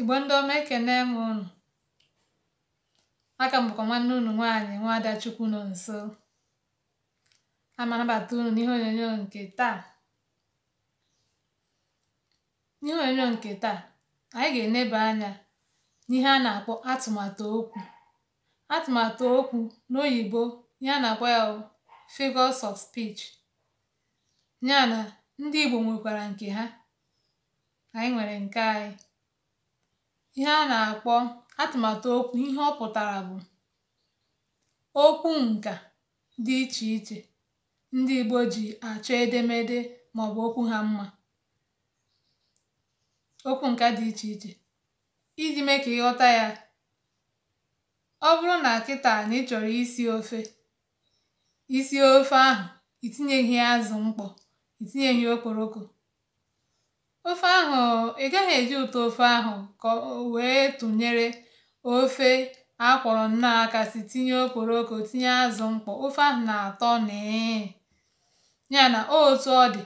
igbo ndị ọma ekene m ụnụ aka m nwanne unu nwaanyị nwa ada nọ nso ma anabata unu n'ihe onyonyo nke taa n'ihe onyonyo nke taa anyị ga-eneba anya n'ihe a na-akpọ atụmatụ okwu atụmatụ okwu n'oyibo ihe a na-akpọ ya figures of speech ya na ndị igbo nwekwara nke ha anyị nwere nke anyị ihe a na-akpọ atụmatụ okwu ihe ọ pụtara bụ okwu nka dị iche iche ndị Igbo ji achọ edemede maọbụ okwu ha mma okwu nka dị iche iche iji mee ka ịghọta ya ọ bụrụ na kịta na chọrọ isi ofe isi ofe ahụ itinyeghi azụ mkpọ itinyeghi okporoko ofe ahụ ị gaghị eji ụtọ ofe ahụ ka wee tụnyere ofe akwọrọ nnọọ aka si tinye okporoko tinye azụ mkpọ ofe ahụ na-atọ nịị ya na otu ọ dị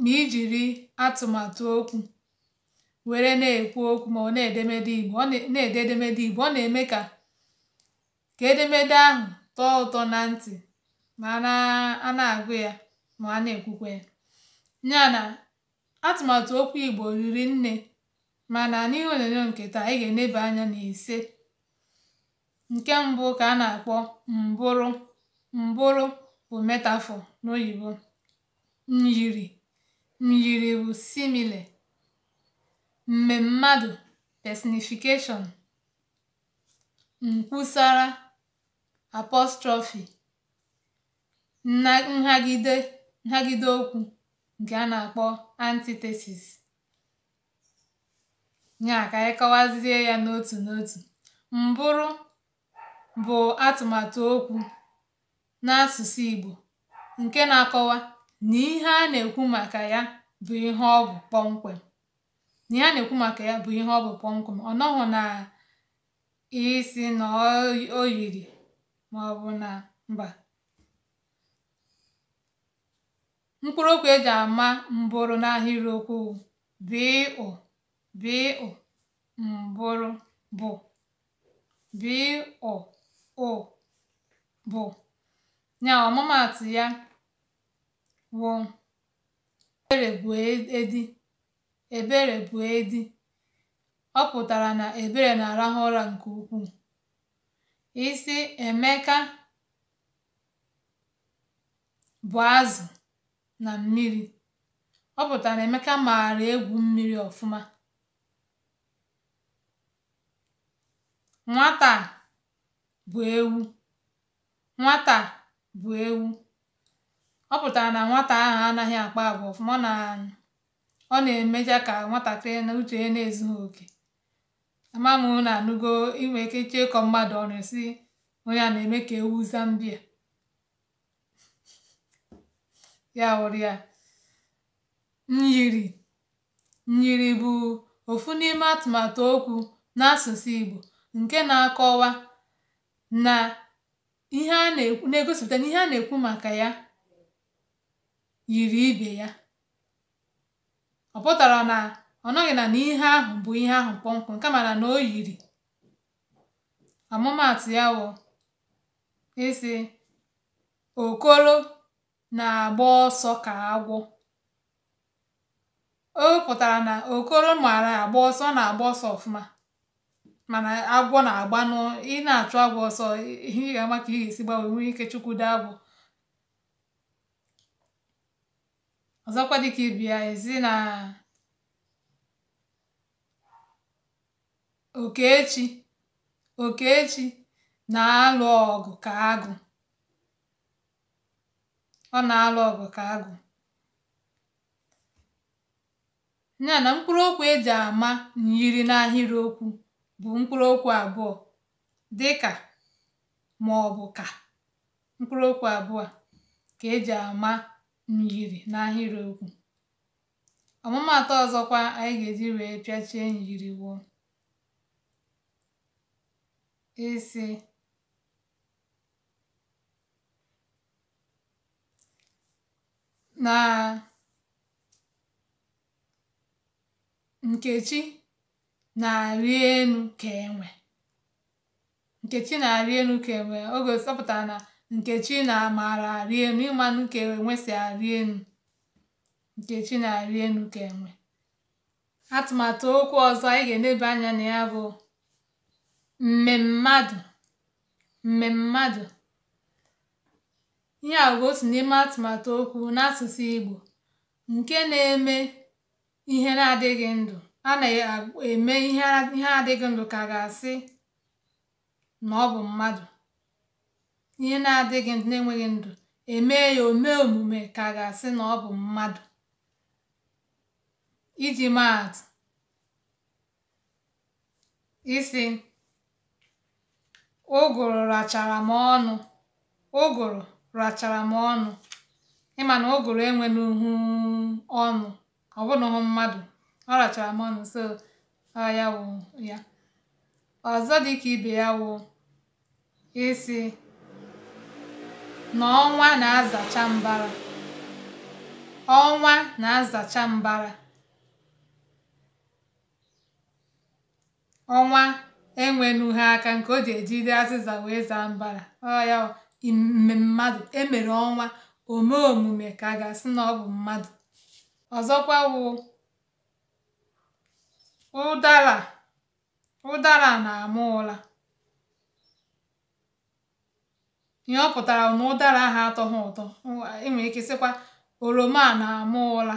ma ijiri atụmatụ okwu were na-ekwu okwu ma ọ na-edemede Igbo ọ na-ede edemede Igbo ọ na-eme ka edemede ahụ tọọ ụtọ na ntị ma a na-agụ ya ma a na-ekwukwa ya ya na Atụmatụ okwu Igbo riri nne, mana n'ihe onyonyo nke taa, anyị ga-eneba anya n'ise. Nke mbụ ka a na-akpọ mbụrụ. Mbụrụ bụ metafọ n'oyibo. Myiri myiri bụ simile. mmemmadụ personification. Nkwusara apostrofi nhagide okwu nke a na-akpọ antithesis nya ka anyị kọwazie ya n'otu n'otu mbụrụ bụ atụmatụ okwu n'asụsụ igbo nke na-akọwa na ihe a na-ekwu maka ya bụ ihe ọ bụ kpọmkwem ọnọghụ ihe a na ọ bụ na isi na o yiri maọbụ na mba mkpụrụokwu e ji ama mbụrụ n'ahịrịokwu okwu b mbụrụ bụ b o bụ nya ọmụmaatụ ya wụ ebere bụ edi ebere bụ edi ọ pụtara na ebere na-arahụ ụra nke ukwuu isi emeka bụ azụ na mmiri. Ọ pụtara Emeka maara egwu mmiri ọfụma. Nwata bụ ewu. Nwata Ọ pụtara na nwata ahụ anaghị akpa agwa ọfụma. Ọ na ọ na-emecha ka nwatakịrị na uche ya na-ezughị oke. Ama na anụgo i ike ịkọ mmadụ ọnụ ị sị onye a na-eme ka ewu Zambia. ya wụrụ ya myiri myiri bụ ofu n'ime atụmatụ okwu n'asụsụ Igbo nke na-akọwa na ihe a na-egosipụta na ihe a na-ekwu maka ya yiri ibe ya ọ pụtara na ọ nọghị na ihe ahụ bụ ihe ahụ kpọmkwem kama na na o yiri ọmụmaatụ ya wụ ịsị okoro na-agba ọsọ ka agwọ o pụtara na okoro maara agba ọsọ na-agba ọsọ ọfụma mana agwọ na-agba nụ ị na-achụ agwọ ọsọ ị ga-ama ka ị ga-esi gbanwe nwee ike chukwu dị agwọ ọzọkwa dịka ibia ezi na okechi okechi na-alụ ọgụ ka agụ ọ na alụ ọgụ ka agụ ya na mkpụrụ okwu e ji àma n'ahịrịokwu bụ mkpụrụ okwu abụọ dịkà màọbụ̀ ka mkpụrụ okwu abụọ ka eji e ji n'ahịrịokwu ọmụmaatụ ọzọkwa anyị ga-eji wee pịachie myiri wụ na Nkechi na-arị enu ka enwe Nkechi na-arị ka enwe oge sọpụtara na Nkechi na maara arị enu ịmanụ ka enwe si arị elu Nkechi na-arị enu ka enwe atụmatụ okwu ọzọ anyị ga-eleba anya na ya bụ mmemmadụ mmemmadụ ihe a bụ̀ otu n'ime atụmatụ okwu n'asụsụ igbo nke na-eme ihe na-adịghị ndụ a na-eme ihe na-adịghị ndụ ka ga-asị na ọ bụ mmadụ ihe na-adịghị ndụ na-enweghị ndụ emee ya o mee omume ka ga-asị na ọ bụ mmadụ iji maa atụ ụgụrụ rachara m ọnụ ụgụrụ rachara m ọnụ ịma na ọ gụrụ enwe n'uhu ọnụ ọ bụrụ mmadụ ọ rachara m ọnụ so ọ ya wụ ya ọzọ dị ka ibe ya wụ isi na ọnwa na-azacha mbara ọnwa na-azacha mbara ọnwa enwenughi aka nke o ji ejide azịza wee zaa mbara ọ ya mmadụ emere ọnwa ome omume ka a ga-asị na ọ bụ mmadụ ọzọkwa wụ ụdara ụdara na-ama ụla ihe ọ pụtara na ụdara ahụ ha ụtọ enwere ike sịkwa oroma na-ama ụla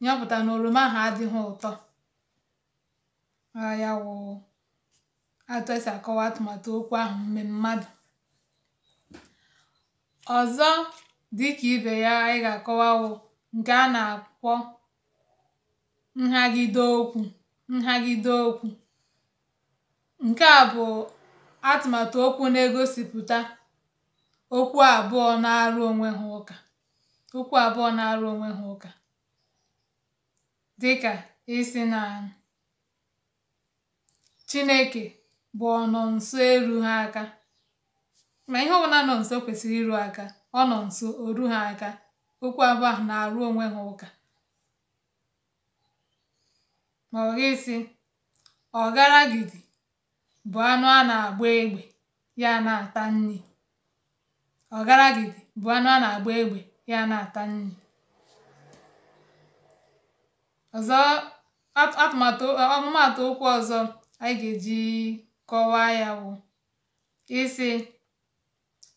ihe ọ pụtara na oroma ahụ adịghị ụtọ ya wụ atụ esi akọwa atụmatụ okwu ahụ mme mmadụ Ọzọ dịka ibe ya anyị ga-akọwa wụ a na-akpọ nhagide okwu. nhagide okwu. Nke a bụ atụmatụ okwu na egosipụta okwu abụọ na-arụ onwe ha ụka. okwu abụọ na-arụ onwe ha ụka. Dịka isi na Chineke bụ ọnọ nso eru ha aka Ma ihe ọbụla nọ nso kwesịrị iru aka, ọ nọ nso, o ru ha aka. Okwu abụọ na-arụ onwe ha ụka. Ma ọ gị sị, ọgaragidi bụ anụ a na-agba egbe, ya na-ata nri. Ọgaragidi bụ anụ a na-agba egbe, ya na-ata nri. Ọzọ at okwu ọzọ anyị ga-eji kọwaa ya bụ isi.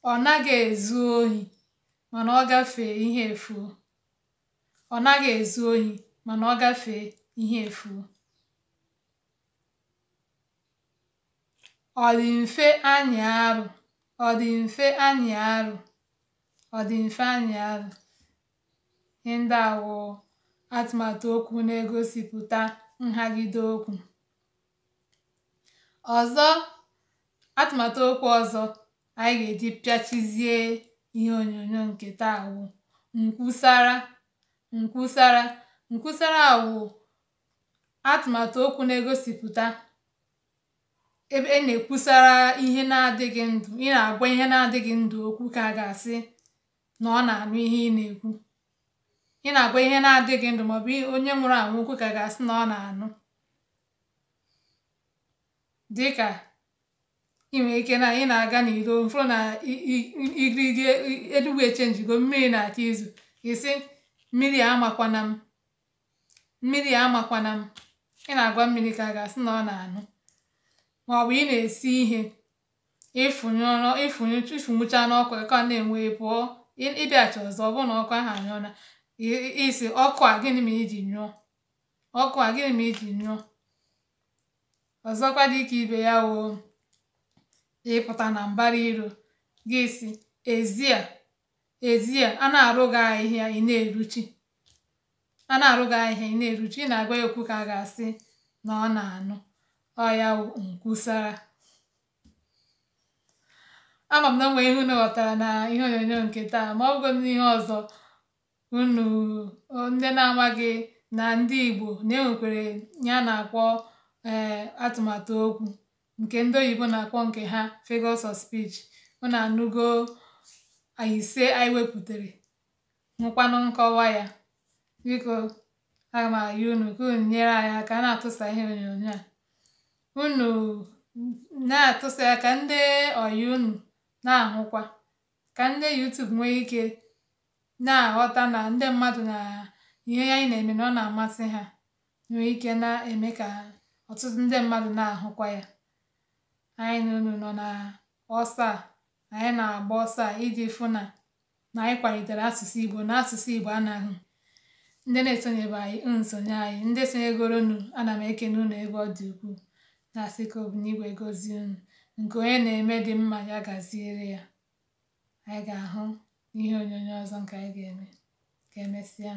Ọ naghị ezu ohi mana ọ gafee ihe efuo. Ọ naghị ezu ohi mana ọ gafee ihe Ọ dị mfe anyị arụ. Ọ dị mfe anyị arụ. Ọ dị mfe anyị arụ. Ihe ndị a atụmatụ okwu na-egosipụta nhagide okwu. Ọzọ atụmatụ okwu ọzọ anyị ga-eji pịachizie ihe onyonyo ǹkè taa wụ ǹkwusara ǹkwusara ǹkwusara wụ atụ̀màtụ̀ okwu na egosipụta ebe e na-ekwusara ihe na-adịghị ndụ ị na-agwa ihe na-adịghị ndụ okwu ka a ga-asị na ọ na-anụ ihe ị na-ekwu ị na-agwa ihe na-adịghị ndụ maọbụ onye nwụrụ anwụ okwu ka a ga-asị na ọ na-anụ dịka i nwere ike na ị na-aga n'iro mfụrụ na igirigi eluigwe echenjigo mmiri na-achọ izu isi mmiri amakwana m mmiri amakwana m ị na-agwa mmiri ka a ga-asị na ọ na-anụ maọbụ ị na-esi ihe ịfụnyụcha n'ọkụ ka ọ na-enwe pụọ ịbịacha ọzọ ọ bụrụ na ọkụ ahụ anyụọ na isi ọkụ a gịnị ma iji nyụọ ọkụ a gịnị ma iji nyụọ ọzọkwa dị ibe ya woo ịpụta na mbara iro gị si ezie ezie a na-arụ gị ahịhịa ị na-eruchi a na-arụ gị ahịhịa ị na-eruchi ị na-agwa ya okwu ka a ga-asị na ọ na-anụ ọ ya nkwusara ama m na onwe ihe unu ghọtara na ihe onyonyo nke taa ma ọ bụgo n'ihe ọzọ unu ndị na-amaghị na ndị Igbo na-enwekwere ya na-akpọ ee eh, atụmatụ okwu nke ndị oyibo na-akpọ nke ha figures of speech na anụgo ise anyị wepụtara nwekwanụ nkọwa ya biko aga m ayị unu ka unu nyere anyị aka na-atụsa ihe onyonyo a unu na-atụsa ya ka ndị oyi unu na-ahụkwa ka ndị YouTube nwee ike na-aghọta na ndị mmadụ na ihe anyị na-eme na ọ na-amasị ha nwee ike na-eme ka ọtụtụ ndị mmadụ na-ahụkwa ya anyị n'ụnụ nọ na ọsọ a anyị na-agba ọsọ a iji fụ na na anyị kwalitere asụsụ Igbo na asụsụ Igbo anaghị ndị na-esonyebe anyị nsonye anyị ndị sonyegoronụ ana m ekene unu ebe ọ dị ukwuu na-asị ka obuigwe gozie unu nke onye na-eme dị mma ya gaziere ya anyị ga-ahụ n'ihe onyonyo ọzọ nke anyị ga-eme ka emesịa